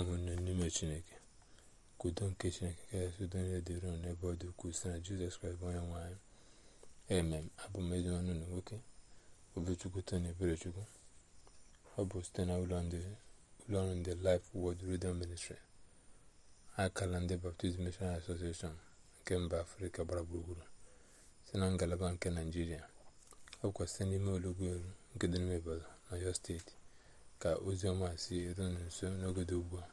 ahụnne n'ime chineke ka nke chineke kachasị e udo niile e dịrị unu n'ebe ọ dị ukwuu site na jizọs kraịst bụ onye nwe anyị abụ m ezinwanụ na nwoke obichukwu tony eberechukwu ọ bụ site na ụlọọrụ ndị Life world Radio Ministry akala ndị Baptist Missionary Association nke mba afrika gbara gburugburu si na ngalaba nke naijiria ọ kwụkwasị n'ime olugbo elu nke dị n'ime Ibadan Ọyọ steeti ka oziọma si eru nso n'ogode ugbu a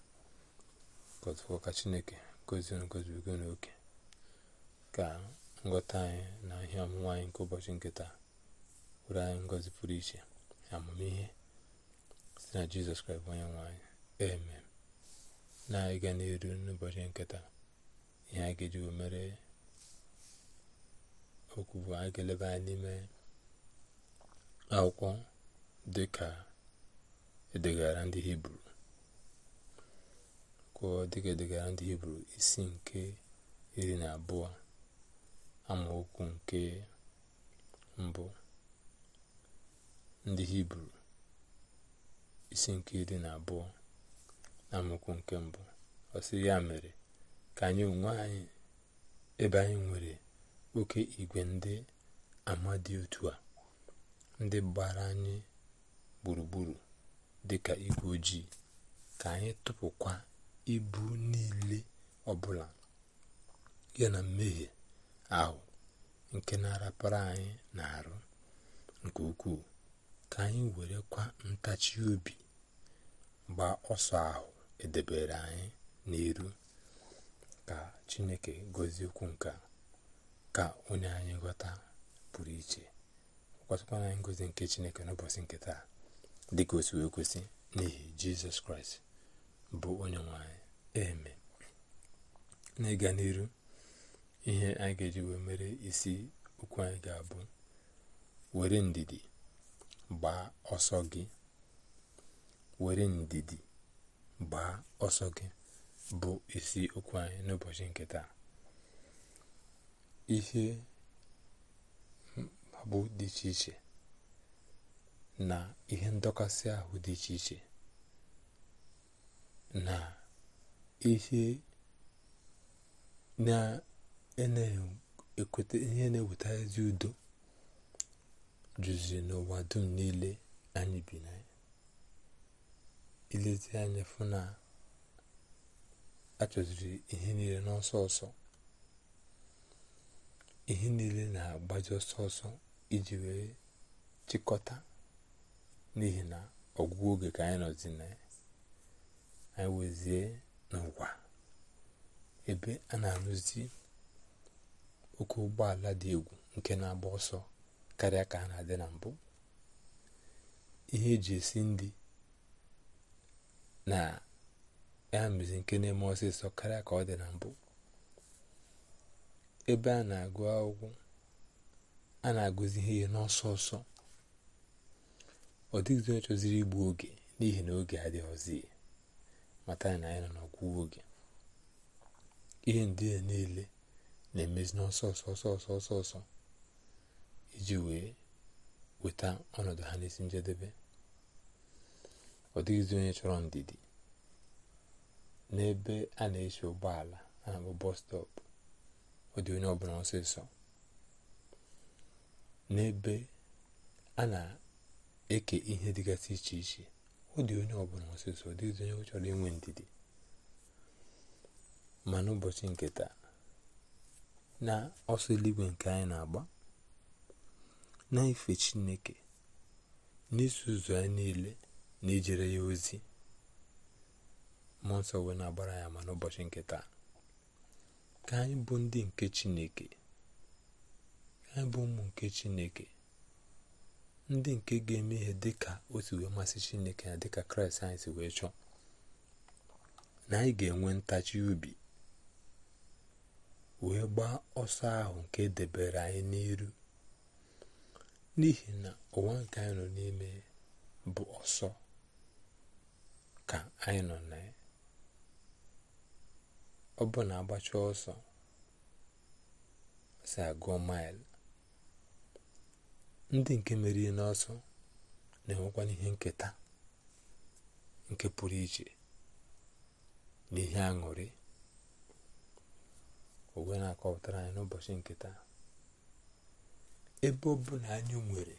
ka chineke ngozi ngozibigo n'oke ka ngọta anyị na ihe ọmụma anyị nke ụbọchị nketa taa were anyị ngozi pụrụ iche amamihe si na jizọs kraịst onye nwe eme na-ịga n'eru n'ụbọchị nketa ihe a ga-eji mere okwu bụ anyị ga-eleba anyị n'ime akwụkwọ dịka edegara ndị hibru dịka edegara ndị hibru isi nke iri na abụọ amaokwu nke mbụ ndị hibru isi nke iri na abụọ amaokwu nke mbụ ọsị ya mere ka anyị onwe anyị ebe anyị nwere oke igwe ndị ama dị otu a ndị gbara anyị gburugburu dịka igwe ojii ka anyị tụpụkwa ibu niile ọbụla ya na mmehie ahụ nke na-arapara anyị na-arụ nke ukwuu ka anyị werekwa ntachi obi gbaa ọsọ ahụ edebere anyị n'iru ka Chineke gọzie okwu nke ka onye anyị ghọta pụrụ iche gwatakwana anyị ngozi nke Chineke n'ụbọchị nke taa dị ka wee kwesị n'ihi jizọs kraịst bụ onye nwanyị eme na ịga n'iru ihe anyị ga-eji wee mere isi okwu anyị ga-abụ were ndidi gbaa ọsọ gị were ndidi gbaa ọsọ gị bụ isi okwu anyị n'ụbọchị nke taa ihe bụ dị iche iche na ihe ndọkasị ahụ dị iche iche na ihe na-ekweta ihe na-eweta ezi udo juziri n'ụwa dum niile anyị bi na ya ilezi anya fụ na achọziri ihe niile n'ọsọ ọsọ ihe niile na-agbaji ọsọ ọsọ iji wee chịkọta n'ihi na ọgwụgwụ oge ka anyị nọzi na ya anyị wezie n'ụwa ebe a na-arụzi oke ụgbọala dị egwu nke na-agba ọsọ karịa ka ha na-adị na mbụ ihe eji esi ndị na ya nke na-eme ọsịsọ karịa ka ọ dị na mbụ ebe a na-agụ akwụkwọ a na-agụzi ihe n'ọsọ ọsọ ọ dịghịzi onye chọziri igbu oge n'ihi na oge adịghịzi mata na anyị nọ n'ọgwụgwụ oge ihe ndị a niile na-emezi n'ọsọ ọsọ ọsọ ọsọ iji wee weta ọnọdụ ha n'isi njedebe ọ dịghịzi onye chọrọ ndidi n'ebe a na-eche ụgbọala a na bọs stọpụ ọ dị onye ọbụla ọsịsọ n'ebe a eke ihe dịgasị iche iche ọ dị onye ọbụla ọsịsọ ọ dịghịzi onye chọrọ inwe ndidi ma n'ụbọchị nke taa na ọsọ eluigwe nke anyị na-agba na ife chineke n'isi ụzọ ya niile na ejere ya ozi mmụọ nsọ na-agbara ya ma n'ụbọchị nke taa ka anyị bụ ndị nke chineke ka anyị bụ ụmụ nke chineke ndị nke ga-eme ihe dị ka otu wee masị chineke ya dịka kraịst anyị si wee chọọ na anyị ga-enwe ntachi ubi wee gbaa ọsọ ahụ nke debere anyị n'iru n'ihi na ụwa nke anyị nọ n'ime bụ ọsọ ka anyị nọ na ya ọ bụ na agbacha ọsọ si agụọ maịlụ ndị nke meriri n'ọsọ na-enwekwa ihe nketa nke pụrụ iche n'ihe ihe aṅụrị ogwe na-akọpụtara anyị n'ụbọchị nketa ebe ọ na anyị nwere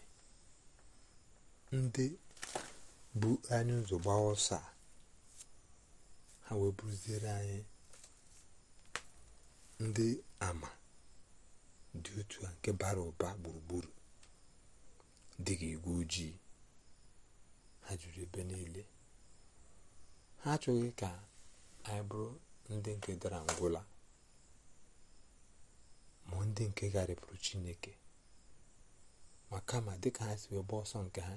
ndị bụ anyị ụzọ gbaa ọsọ ha wee anyị ndị ama dị otu a nke bara ụba gburugburu dị ka igwe ojii ha jụrụ ebe niile ha achọghị ka anyị bụrụ ndị nke dara ngwụla ma ndị nke garịpụrụ chineke ma kama dịka ha si wee ọsọ nke ha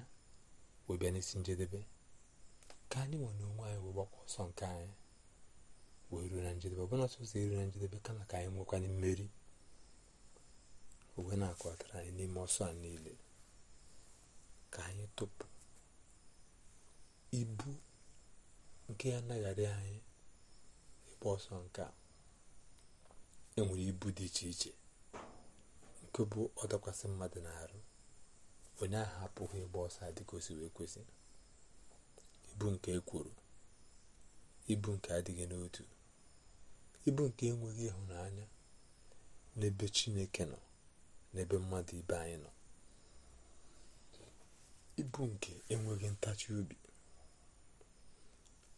wee bịa n'isi njedebe ka anyị nwere onwe anyị wee gbakwa ọsọ nke anyị wee ruo na njedebe ọbụna sọsọ eru na njedebe kama ka anyị nwekwanye mmeri owe na-akọtara anyị n'ime ọsọ a niile ka anyị tụpụ ibu nke ya adị anyị ịgba ọsọ nke a enwere ibu dị iche iche nke bụ ọdakwasị mmadụ na-arụ onye ahụ apụghị ịgba ọsọ dịka o ekwesị. ibu nke ekworo ibu nke adịghị n'otu ibu nke enweghị ịhụnanya n'ebe chineke nọ n'ebe mmadụ ibe anyị nọ ibu nke enweghị ntachi obi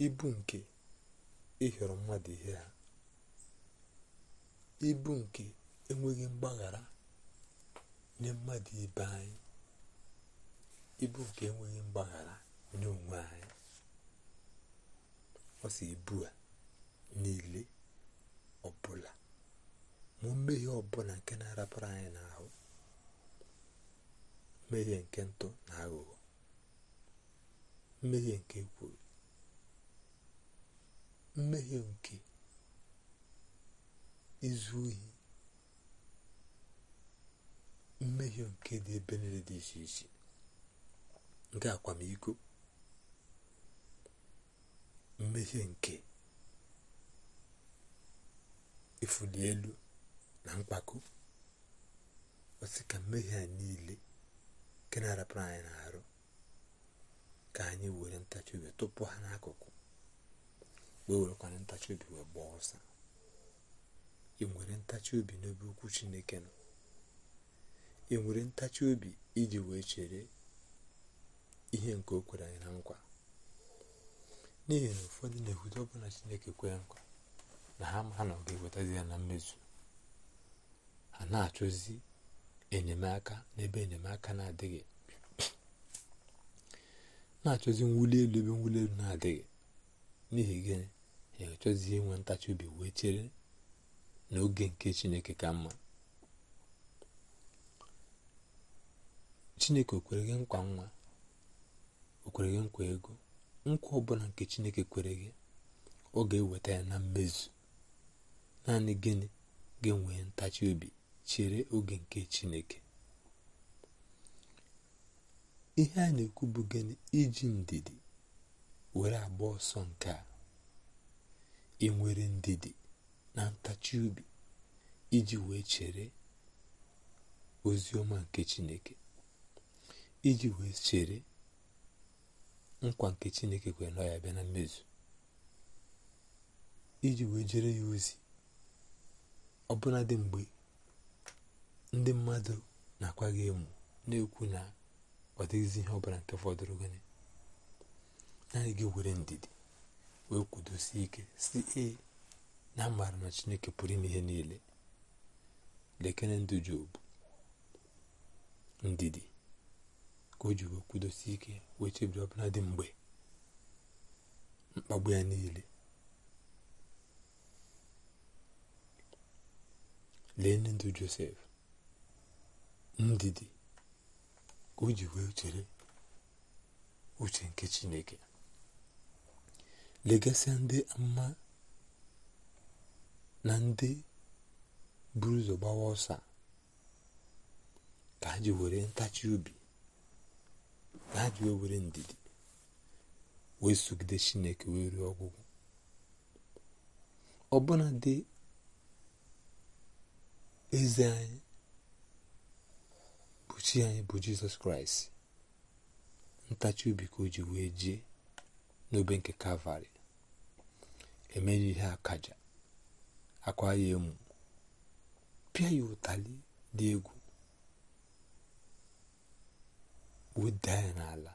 ibu nke ịhịọrọ mmadụ ihe ha ibu nke enweghị mgbaghara nye mmadụ ibe anyị ibu nke enweghị mgbaghara nye onwe anyị ọsọ ibu a niile ọbụla ma mmehie ọbụla nke na-arapụrụ anyị n'ahụ mmehie nke ntọ na aghụghọ mmehie nke kwuru mmehie nke izu ohi mmehie nke dị ebe niile dị iche iche nke akwamiko mmehie nke ifuli elu na mkpako osika ka mmehie a niile nke na-arapụrụ anyị n'arụ ka anyị were ntachi obi tupu ha n'akụkụ wee werekwana ntachi obi wee gbaa ọsa ị nwere ntachi obi n'ebe okwu chineke nọ ị nwere ntachi obi iji wee chere ihe nke o kwere anyị na nkwa n'ihi na ụfọdụ na-ekwute ọbụla chineke kwere nkwa na ha ma ha na ọ ga-ewetazi ya na mmezu ha na-achọzi enyemaka n'ebe enyemaka na-adịghị na-achọzi nwuli elu ebe mwuli elu na-adịghị n'ihi gịnị ya achọzi inwe ntachi obi wee chere n'oge nke chineke ka mma chineke o kwere gị nkwa nwa o kwere gị nkwa ego nkwa ọbụla nke chineke kwere gị ọ ga-eweta ya na mmezu naanị gịnị ga-enwe ntachi obi chere oge nke chineke ihe a na-ekwu bụ gịnị iji ndidi were agba ọsọ nke a ị nwere ndidi na ntachi ubi iji wee chere ozi ọma nke chineke iji wee chere nkwa nke chineke kwere na ya bịa na mmezu iji wee jere ya ozi ọbụladị mgbe ndị mmadụ na-akwa gị emu na-ekwu na ọ dịghịzi ihe ọbara nke fọdụrụ gịnị naanị gị were ndidi wee kwudosie ike si ee na amaara na chineke pụrụ ime ihe niile lekere ndụ jobu ndidi ka o ji wee kwudosie ike wee chebiri ọbụla dị mgbe mkpagbu ya niile lee ndụ josef ndidi ka o ji wee chere uche nke chineke legasịa ndị mma na ndị buru ụzọ gbawa ọsa ka ha ji were ntachi obi na ha ji wee were ndidi wee sogide chineke wee ruo ọgwụgwụ ọbụna dị eze anyị chi anyị bụ jizọs kraịst ntachi obi ka o ji wee jee n'obe nke kalvarị emeghị ihe akaja akwa ya emu pịa ya ụtalị dị egwu weda ya n'ala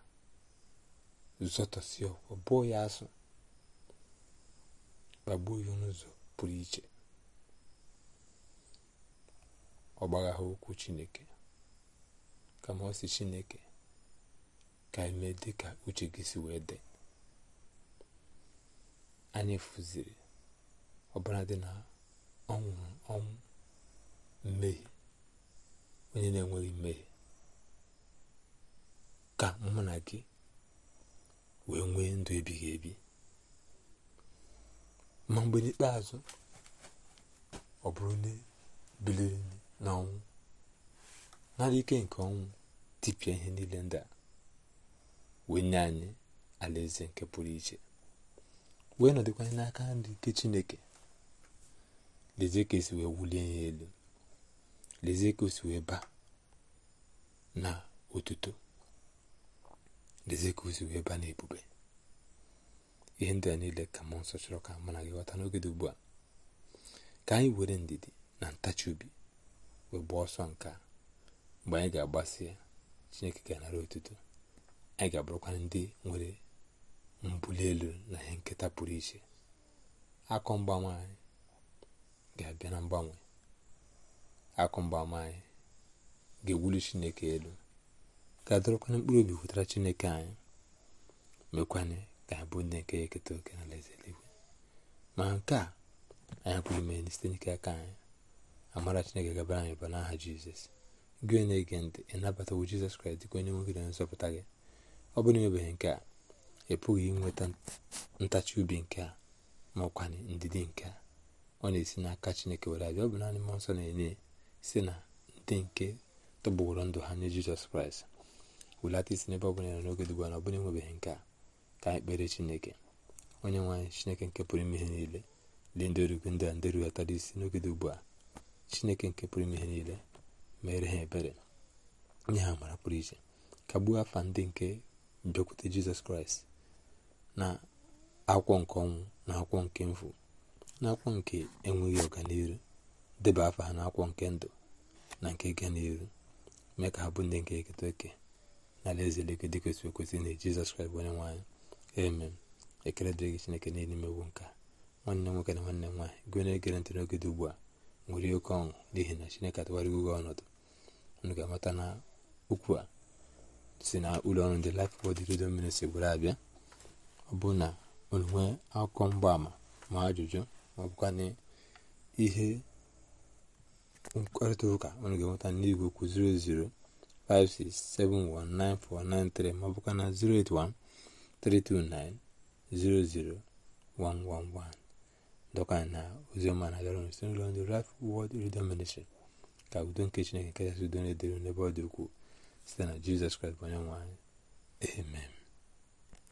zọtọsi ọkwa bụọ ya asụ gbagbuo ya n'ụzọ pụrụ iche ọ gbagha okwu chineke kama ọ si chineke ka eme dị ka uche gị si wee dị anyị fụziri ọbara dị na ọ ọnwụ mmehie onye na-enweghị mmehie ka mụ na gị wee nwee ndụ ebighị ebi ma mgbe n'ikpeazụ ọ bụrụ na e biliri n'ọnwụ nara ike nke ọnwụ tipịa ihe niile ndị a wee nye anyị alaeze nke pụrụ iche wee nọdịkwanye n'aka nri nke chineke lezie ka esi wee wulie ya elu lezie ka si wee baa na otuto lezie ka si wee baa na ebube ihe ndị a niile ka mmụọ nsọ chọrọ ka mụ na gị ghọta n'oge dị ugbu a ka anyị were ndidi na ntachi obi wee gbaa ọsọ nke mgbe anyị ga-agbasi ya chineke ga-anara otuto anyị ga-abụrụkwa ndị nwere mbuli elu na ihe nketa pụrụ iche akụ mgbanwe anyị ga-abịa na mgbanwe akụ mgbanwe anyị ga-ewuli chineke elu ga-adọrọkwanye mkpụrụ obi wetara chineke anyị mekwanye ga bụ ndị nke ya eketa oke na alaeze eluigwe ma nke a anyị pụrụ ime site n'ike aka anyị amara chineke gabara anyị bụ n'aha jizọs gị na-ege ntị ịnabatawo jizọs kraịst dịka onye nwoke na nzọpụta gị ọ bụrụ na nke a ị pụghị inweta ntachi ubi nke a ma ọkwanị ndidi nke a ọ na-esi n'aka chineke were abịa ọ bụ naanị mmụọ nsọ na-enye si na ndị nke tọgbọrọ ndụ ha nye jizọs kraịst wulata isi n'ebe ọ bụla nọ n'oge dịgba na ọ bụla enwebeghị nke a ka anyị kpere chineke onye nwaanyị chineke nke pụrụ ime ihe niile dị ndị orugwu ndị a ndị rughọtara isi n'oge dị ugbu a chineke nke pụrụ ime ihe niile meere ha ebere nye ha amara pụrụ iche ka gbuo afa ndị nke bịakwute jizọs kraịst na akwụkwọ nke ọnwụ na akwụkwọ nke mfu na akwụkwọ nke enweghị ọganiru deba afa ha na akwụkwọ nke ndụ na nke ga n'iru mee ka ha bụ ndị nke eketa oke na alaeze leke dịkwesị ekwesị na jizọs kraịst onye nwaanyị emem ekele dịrị chineke niile imewu nka nwanne nwoke na nwanne nwaanyị gụnyere egere ntị n'oge dị ugbu a nwere oke ọṅụ n'ihi na chineke atụgharịgo oge ọnọdụ unu ga-amata na a si na ụlọ ọrụ ndị Life Word Radio Ministry were eh? abịa ọ bụ na onwe akụkọ mgbaama ma ajụjụ ma ọ bụkwa na ihe mkparịta ụka unu ga-enweta n'igwe okwu 00567194193 ma na 08132900111 doka na oziọma na-adọrọ nso n'ụlọ ndị Life ka udo nke chineke nke kachasị udo na-edere n'ebe ọ dị ukwuu site na jizọs kraịst bụ onye nwe amen